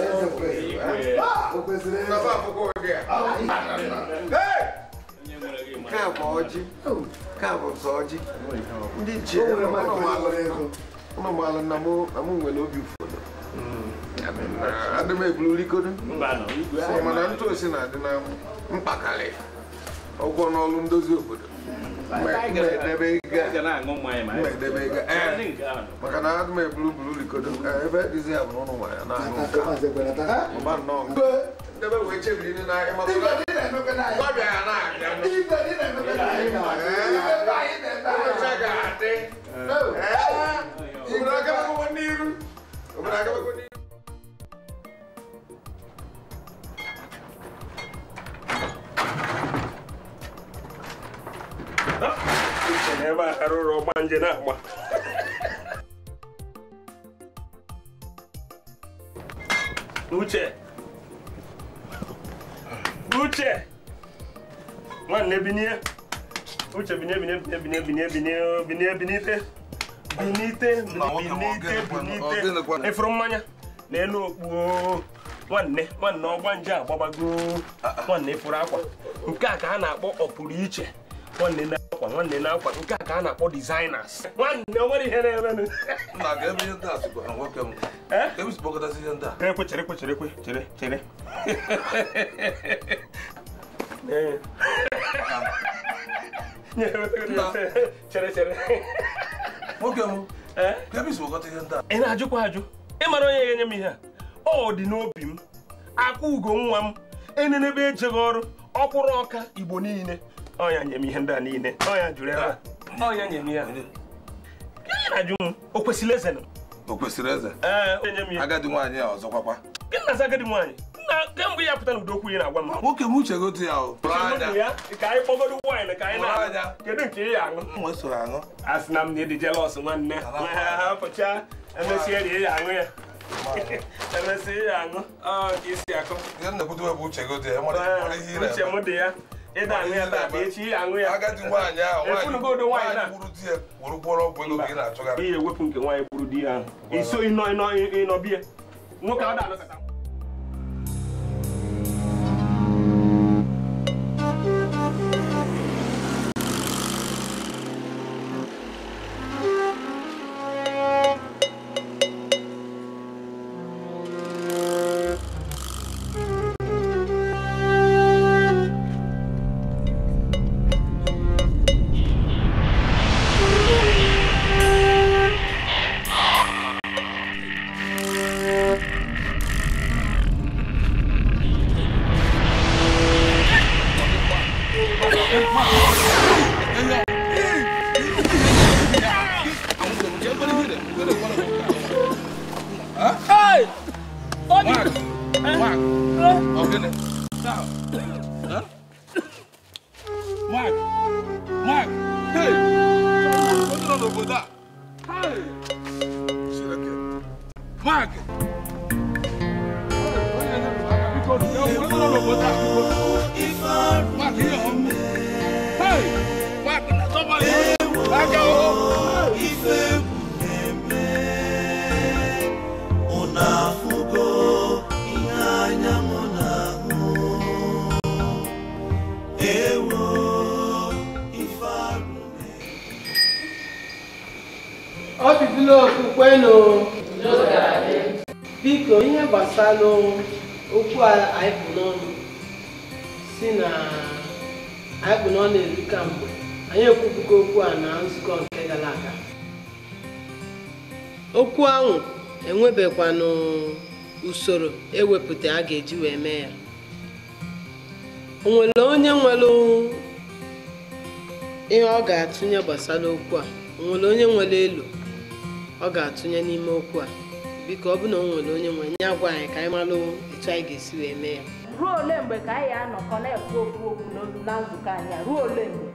S10: Bàbá àfọkọ́ ọ̀dẹ̀. ka bụ ọjị ka bụ sọ ọjị ndị ji ụnụmalụ na nwere obi ụfọdụ adị m eburu rikodo mana ntụ osi na-adị na mkpakarị ụgwọ n'ọlụ ndozi obodo maka na adị m e, ebe dizi ya bụ ụlụ nwanyị na-aṅụ nka ebe wee ebe
S4: a na uche uche nwanne binie uche binye binye binye binye binye binye binye binite binite binite binite efuru mmanya n'elu okpuo nwanne nwanne ọgba nje agbabago nwanne ah, ah. furu akwa nke a ka a na-akpọ ọpụrụ iche nwanne na akwa nwanne na akwa nke a ka a na-akpọ designers nwanne o nwere ihe na-emenụ eh? e ekwe chere ekwe chere ekwe chere chere nwoke m ị na-ajụkwa ajụ ị mara onye ga-enye m ihe a ọ dị n'obi m akwa ugo nwa m enenebe ejeghị ọrụ ọkwụrụ ọka igbo niile Ọ nye m ihe ndị a niile ya jụrụ ebe ọya nye m ihe a. m o kwesịrị eze o kwesịrị eze ee o nye e, agadi nwaanyị ọzọ agadi nwaanyị kemgbe ya pụtara ụdokwu ị na-agwa m nwoke m uche gotu ya ka anyị kpọgodo wine ka anyị na kedu nke ị ya aṅụ a sị na m na ịdị jelọs nwanne pụcha emesịa rie ya aṅụ ya emesịa ya aṅụ ka akụ uche m dị ya ịda aṅụ ya taa echi ya aṅụ ya efunugodo nwaanyị na ewepụ nke nwaanyị gburu di ya ahụ iso ịnọ ịnọ ịnọ nwoke ọ da
S2: usoro ewepụta a ga-eji wee mee ya o nwere onye nwere ihe ọ ga-atụnye gbasara okwu a onwere onye nwere elu ọ ga-atụnye n'ime okwu a biko ọ bụ na o nwere onye nwere nye agwa anyị ka anyị mara etu anyị ga-esi wee mee ya ruo ole mgbe ka anyị anọkọ na-ekwu okwu okwu na nzukọ anyị ruo ole mgbe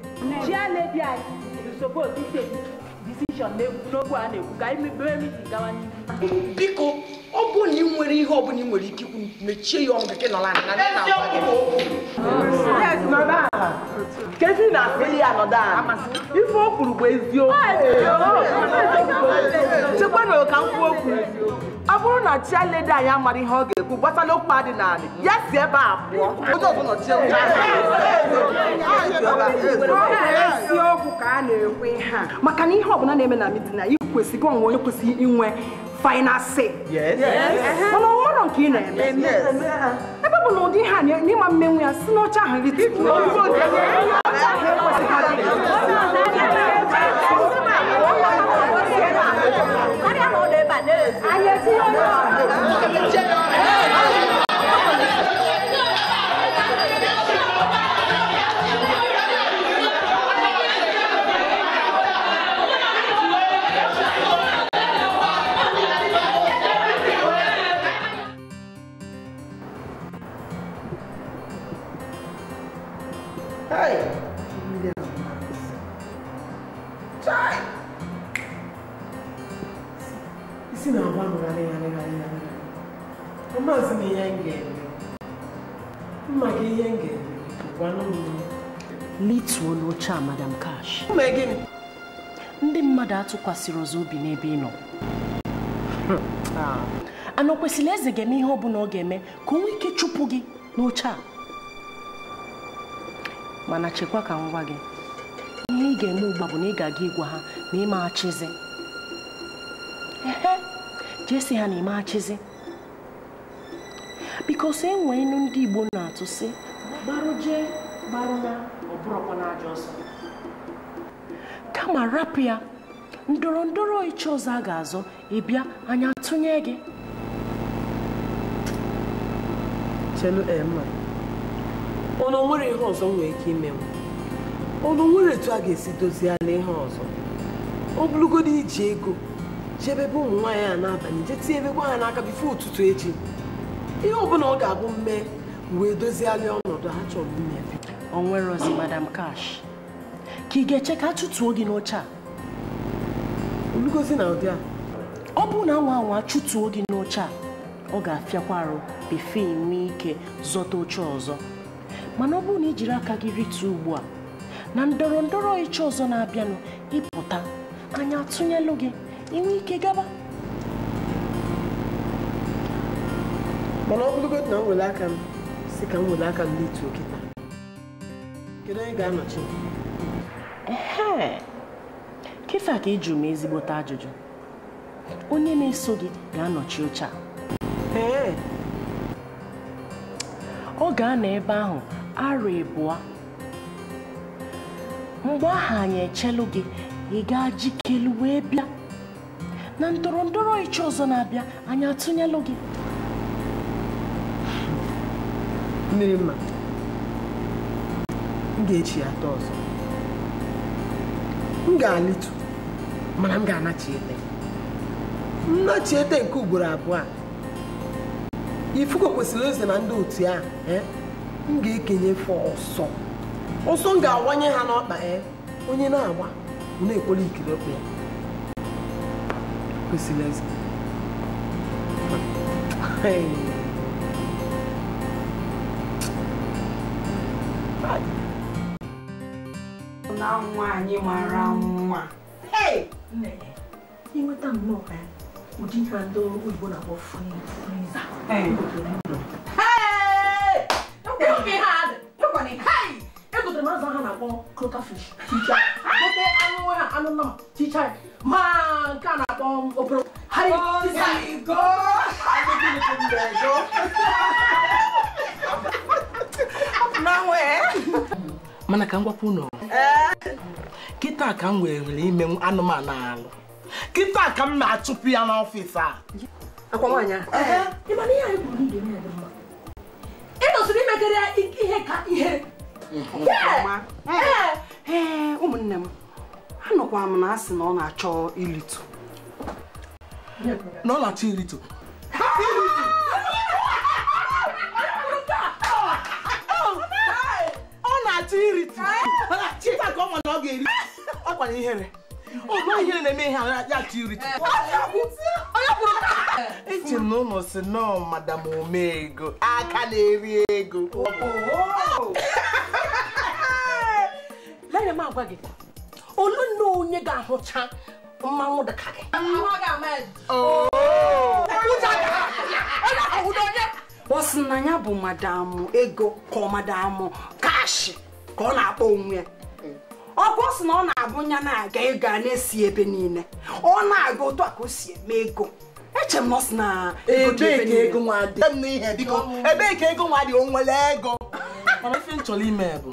S2: chi a anyị ebi anyị disopos na decision n'okwu a na-ekwu ka anyị mebere miti gawa n'ihu biko nwere ihe ọ bụla ị nwere ike ikwu
S1: mechie ya ọnụ gị nọla kezi na asịrị ya nọdụ ala ife o kwuru bụ eziokwu ah, chekwana ka m okwu ọ bụrụ na chialedi anyị amara ihe ọ ga-ekwu gbasara okwu adị n'ala ya si ebe a pụọ eziokwu
S2: ka a na-ekwe ha maka na ihe ọbụla na-eme na midina ị kwesịrị onwe onye kwesịrị inwe final say. Yes. Yes. Mama, what on kin na eme? Yes. Ebe bụ na ụdị ha na ịma mmenwu ya si n'ọcha ahụ rite.
S1: Anyị etinye ọrụ ọrụ.
S2: lituo n'oche a madam Cash ndị mmadụ atụkwasịrị ọzọ obi n'ebe ị nọ hmm. ah. ana o kwesịrị eze ga-eme ihe ọ bụla ọ ga-eme ka o nwee ike chụpụ gị n'oche a mana chekwa ka ngwa gị ihe ị ga-eme ugbu bụ na ị ga-aga ịgwa ha ma jesi ha na chizi bikos enwee ilu ndị Igbo na-atụ sị jee. na kama rapụ ya ndọrọ ndọrọ ịchị ọzọ a ga-azọ ịbịa anyị atụnye gị emma eh, ọnụ nwere ihe ọzọ nwee ike ime ọnụ nwere etu a ga-esi doziela ihe ọzọ ọ bụrụgodo iji ego jebe ebe ụmụ nwaanyị a n'abalị je tinye ebegwa ha n'aka bifo ụtụtụ echi ihe ọbụla ọ ga-abụ mme wee doziela ọnọdụ ha chọrọ ime ozi madam cash ka ị ga-eche ka a chụtuo gị n'oche a olugozi na ụdị a ọ bụrụ na anwa anwa chụtuo gị n'oche a ọ ga-afịakwa arụ befe nwee ike zọta oche ọzọ mana ọ bụrụ na ị jiri aka gị rituo ugbu a na ndọrọ ndọrọ ịchọ ọzọ na-abịanụ ịpụta anya atụnyelụ gị inwe ike gaba mana ọ na m were aka m si ka m were aka m rituo kịta Kedu onye ga-anọchi? Ee, ka ịjụ m ezigbote ajụjụ. Onye na-eso gị ga-anọchi oche a. Ọ ga-anọ ebe ahụ arọ ịbụwa, Mgbe ahụ anyị echelụ gị, ị gaa jikelu wee bịa. Na ndọrọ ndọrọ ịchọ ọzọ na-abịa, anyị atụnyelụ gị. Mmiri mma. m ga-echi ya ata ọzọ m ga-alịtu mana m ga-anachiete ete nke ugboro abụọ a ifuko kwesịrị eze na ndị otu a e, m ga-ekenye ọsọ ọsọ m ga-awanye ha n'ọkpa ya e, onye na-agba na-ekwere ikiri okwu ya kwesịrị mụta nwa anyị mara nwa ịnweta nnọọ ụdị ihe ndị oyibo na-akpọ egotere m azụ ha na-akpọ crocafish gote anụ ha anụ nnama ticha ma nke a na-akpọ oporo mana ka m gwapụ ụlọ kịta ka m were anụmanụ alụ kịta ka m na-achụpụ ya n'ọfịs a ịdọsiri imekere ihe ka ihe ụmụnne m anụkwa m na asị na ọ na-achọ ilitu
S4: na ọ na-achọ ilitu
S1: ọ na-achọ iritu ọ na ọ ga akwara ihere ọgba ihere na-eme ihe ya tiri
S2: eche m na ụlọ si nọọ madam omego aka na-eri ego lere m agwa gị olu nne onye ga-ahụcha mmanwụ dịka gị ọ sị na ya bụ madam ego ka ọ madam kashi ka ọ na-akpọ onwe ya ọkwa ọ na ọ na-abụnya na-aga ego a na-esi ebe niile ọ na-aga otu a ka o si eme ego eche m nọsị na ego nwa oh. ebee ka ego nwa dị o nwere ego mana ife m chọrọ ime bụ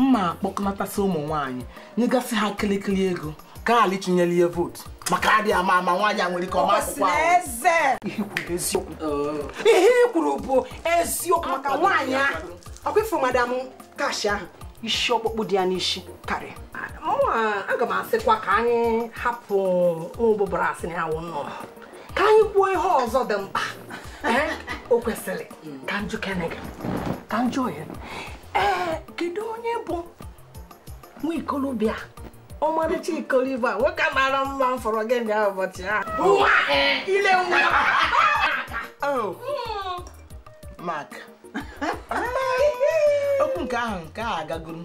S2: mma akpọkọnatasị ụmụ nwaanyị nyegasị ha kịrịkịrị ego ka gaa alichinyere ihe vootu maka adịghị ama ama nwaanyị a nwere ike ọma akwụkwọ ihe i oh. kwuru bụ eziokwu maka nwaanyị ahụ ọkwa ifuru madam kashi ahụ isi ọkpụkpụ dị ya n'isi karịa aga m asịkwa ka anyị hapụ ụbụbara asị na ya nọ nnọọ ka anyị kwuo ihe ọzọ dị mkpa o kwesịrị ka njụ kanju ka njụ oyi ee kedu onye bụ nwa ikolobịa ọmarịcha ikolobia nwoke mara mma mfọrọ gị na ụbọchị ahụ ile nwa oh. hmm. mak. okwu nke ahụ nke a agagoro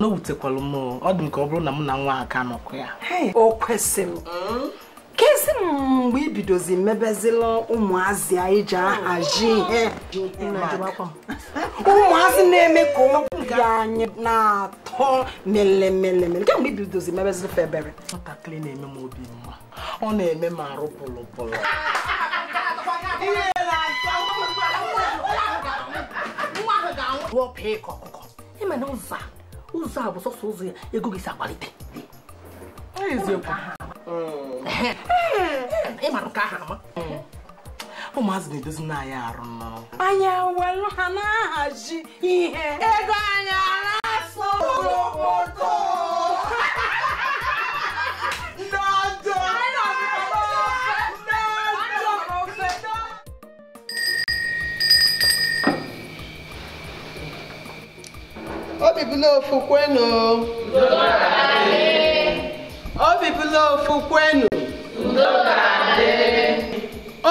S2: n'owutekwala m ọ dị m ka ọ bụrụ na mụ na nwa aka nọkọ ya o kwesịrị kezi m mgbe ibidozi mebezila ụmụazị anyị ji ahazi ihe ụmụazị na-eme ka obi anyị na-atọ melemelemele kemgbe ibidozi mebezila febere nwatakịrị na-eme m obi mma ọ na-eme m arụ pụlụpụlụ pụọ pịa ịkọ ọkụkọ ịma na ụzọ ụzọ a bụ sọsọ ụzọ ya ego gị si akwalite ịmara ka aha ama ụmụazị na-edozi n'anya arụ nnọọ anyị welu ha na-ahazi ihe ego anyị na-asụ
S1: obi bụla ofu kwenu obi bụla ofu kwenu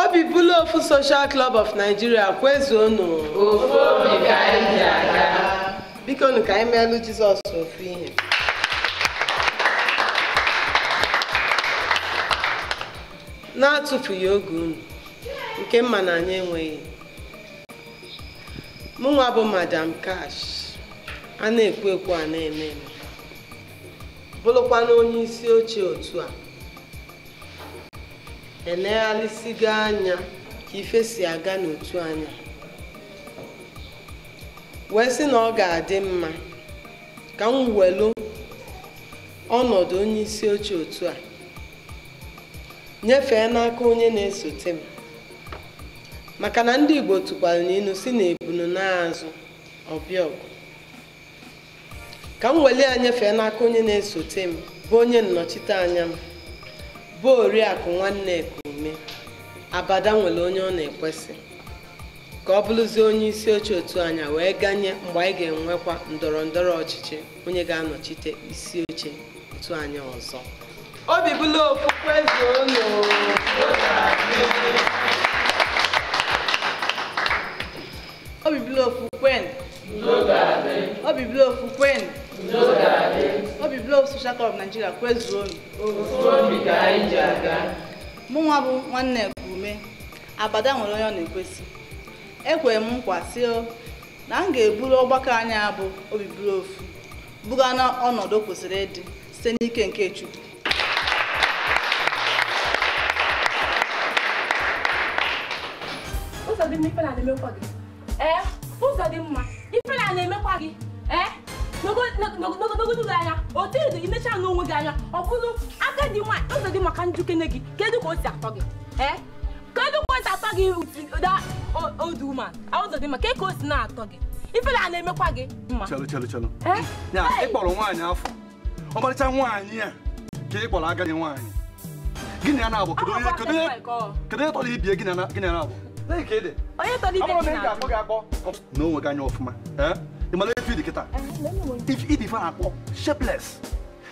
S2: obi bụla ofu Social Club of Nigeria kwezuonu biko nụ ka anyị meelu Jizọs ofu ihe na-atụfughị oge unu nke mma na anyị enweghị mụnwa bụ Madam Cash a na ekwo ekwo a na-eme eme bụrụkwana onye isi oche otu a gaa anya ka ife si aga n'otu anya wee sị na ọ ga-adị mma ka m welu ọnọdụ onye isi oche otu a nyefee n'aka onye na-esote m maka na ndị Igbo tụkwara n'inu si na ebunu ọbịa ọgụ ka m weli ya nyefee n'aka onye na-esote m bụ onye nnọchite anya m bụ oriakụ nwanne Ekume abada nwere onye ọ na-ekwesị ka ọ bụrụzie onye isi oche otu anya wee ganye mgbe anyị ga-enwekwa ndọrọ ndọrọ ọchịchị onye ga-anọchite isi oche otu anya ọzọ
S1: obi bụla okwukwe
S2: obi bụla okwukwe obi bụla okwukwe obi blọọgụ Social Club Nigeria kwezuonu mụ nwa bụ nwanne Ekume abada nwere onye ọ na-ekwesị ekwere m nkwa si na m ga-eburu ọgbakọ anyị bụ obi blọọgụ buga na ọnọdụ kwesịrị ịdị site n'ike nke Chukwu ụzọ dị mma ife na-emekwa gị eh, eh, n'ogologo ụlọ anya otu edo imechaa n'onwe gị anya ọ bụrụ agadi nwaanyị ụzọ dị maka njikene gị kedu ka o si atọ gị ee kedu ka o si atọ gị odu ma ụzọ dị maka ka o si na-atọ gị ifere a na-emekwa gị mma chelụ
S5: chelụ chelụ ya ịkpọrọ nwaanyị afọ ọmarịcha nwaanyị a ka ị kpọrọ agadi nwaanyị gịnị a na-abụ kedu onye tọrọ ibie gịnị a na-abụ onye tọrọ ibe gị na-abụ n'onwe gị anya ọfụma ịmara efe dị kịta ife na-akpọ shapeless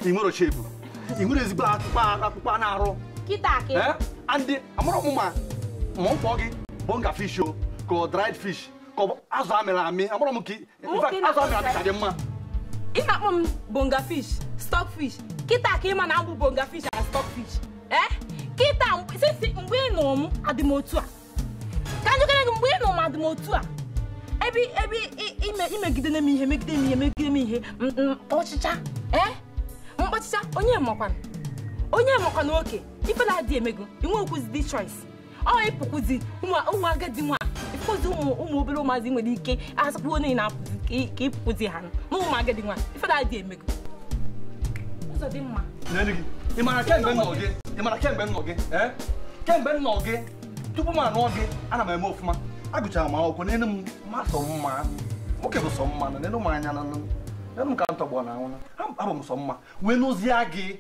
S5: nwere shepu ị nwere ezigbo akpụkpọ na-arụ andị ma ọ kpọọ gị bonga fish o ọ dried fish ka ọ bụ azụ amịrị amị amara m ka azụ amịrị amị ka dị mma ị na-akpọ m
S2: bonga fish stock fish bonga fish stock fish ebe ebe imegidere m ihe megide m ihe megide m ihe ọchịcha ee eh? mkpọchịcha onye makwana onye makwana oke ife na-adị emego inwe okwuzi choice ọ ịpụkwuzi ụmụ agadi nwa ịpụkwuzi ụmụ obere ụmụazị nwere ike asụkpụ onye na-apụzi ka ịpụkwuzi ha na ụmụ agadi nwa ife na-adị emego ụzọ dị mma
S5: ị mara kemgbe nnọ gị ị mara kemgbe nnọ gị kemgbe nnọ eh? gị tupu m anụọ gị ana m eme ofụma agụchara m akwụkwọ n'elu m masọ mma nwoke bụ sọ mma n'elu m anya n'elu m ka m tọgbọ na anwụ abụ m sọ mma wee n'ozie gị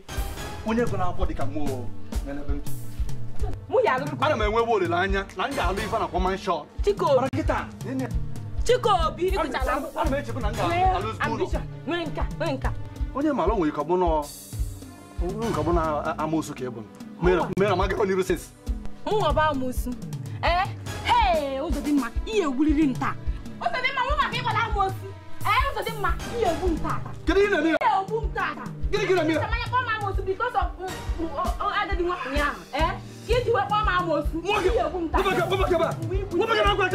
S5: onye gụ na-akwọ dịka mmụọ n'ebe m ana m enwebe olileanya na m ga-alụ ife na kwọman shọt Chikobi onye mara nwere nkabụ na amoosu ka ị bụ mere na magakọ n'iru sins
S2: mụọba amoosu ee ee eh, Uzodimma ihe ewuliri nta Uzodimma nwa maka ịgbala ama osi ee eh, Uzodimma ihe egbu nta kedu ihe na-eme ihe egbu nta
S3: gịnị
S4: gị na-eme mmanya
S2: kpọọ m ama osi bikos mm, mm, agadi nwa ụnyaahụ ee eh, ka iji wee kpọọ m ama osi ihe egbu nta webagara agwa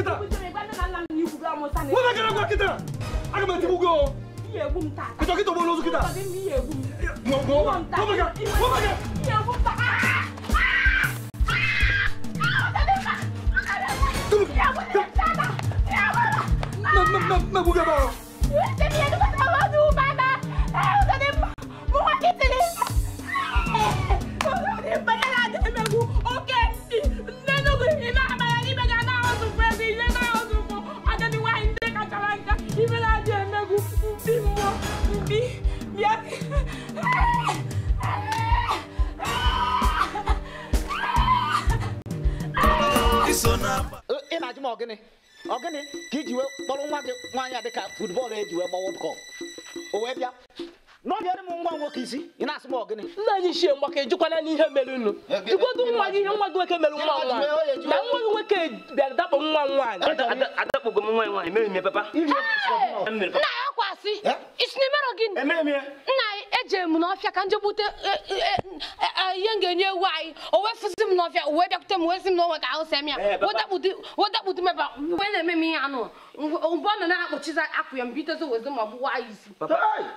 S2: kịta aga m etigbu gị ihe egbu nta kịta kịta ụgbọ n'ozu kịta
S1: ihe egbu nta ah!
S5: Isso
S9: não. É
S5: ị na-ajụ m ọgịnị ọgịnị
S1: ka iji wee kpọrọ nwa gị nwaanyị a dịka futbọọlụ eji wee gbawa ụkọ o wee bịa n'ọbịara m nwa nwoke isi ị na-asị m ọgịnị nna anyị chie mgbaka n'ihe mere unu jikwago nwa gị ihe nwa gị nwoke
S2: mere nwa nwa na nwa gị
S4: nwoke bịara dakpo nwa nwaanyị adakpụgo m nwa mere m papa
S2: nna ya gị nna eje m n'ọfịa ka e, e, e, ihe m ga-enye ewu anyị o wee m n'ọfịa o wee bịakwute m wee sị m ka ahụ sem na-eme m ihe anụ mgbe ọ nọ na-akpọchiza akwụ ya m wezi ma anyị
S3: isi